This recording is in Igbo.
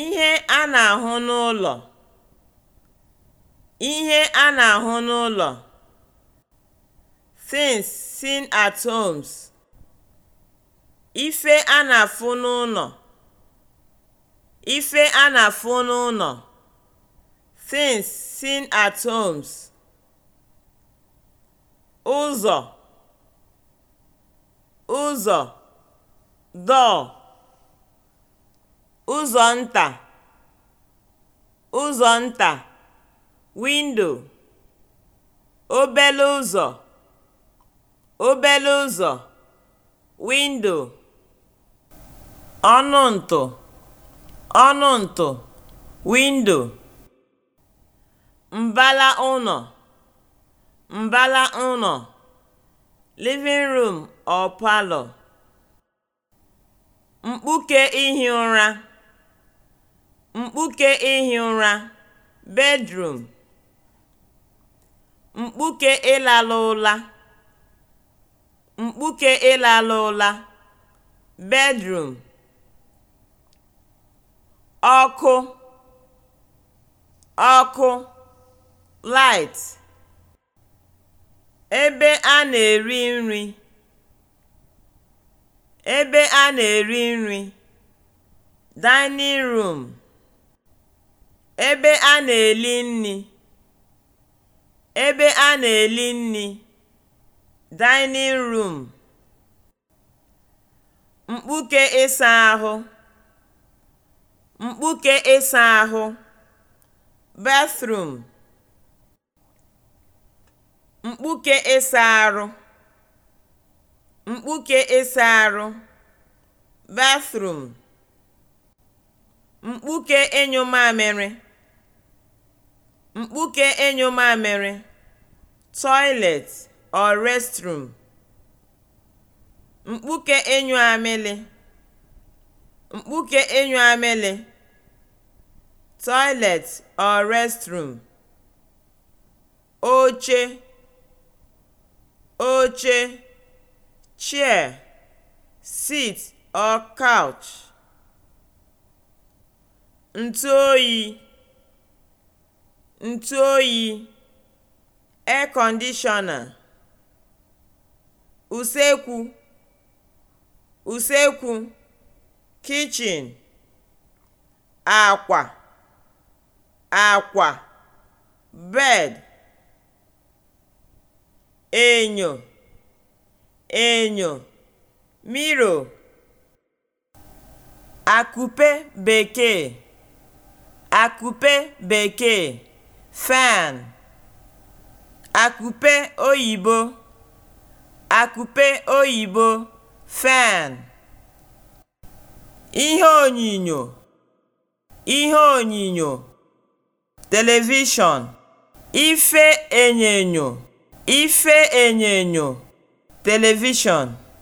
Ihe a na-ahụ n'ụlọ Ihe a na-ahụ n'ụlọ (things seen at homes) Ife a na-afụ n'ụnọ Ife a na-afụ n'ụnọ (things seen at homes) Ụzọ (ụzọ) door ụzọ nta ụzọ nta (windo) obele ụzọ obele ụzọ (windo) ọnụ ntụ ọnụ ntụ (windo) mbala ụlọ mbala ụlọ (living room or parlour) mkpuke ihi ụra mkpuke ihi ụra (bedroom), mkpuke ịlala ụra (mkpuke ịlala ụra) (bedroom), ọkụ (ọkụ, light), ebe a na-eri nri (ebe a na-eri nri), dining room ebe a na-eli nni ebe a na-eli nni (dining room), mkpuke ịsa ahụ mkpuke ịsa ahụ (bathroom), mkpuke ịsa arụ mkpuke ịsa arụ (bathroom) mkpuke enyo mamịrị mkpuke ịnyụ mamịrị (toilet or restroom) mkpuke ịnyụ amịlị mkpuke enyo amịlị (toilet or restroom) oche oche (chair, seat or couch) ntu oyi, (air conditioner) usekwu usekwu kichin akwa akwa bed enyo enyo miro akupe bekee akupe bekee (fan), akupe oyibo (akupe oyibo (fan), ihe onyinyo (ihe onyinyo telivishọn), ife enyo (ife enyonyo telivishọn)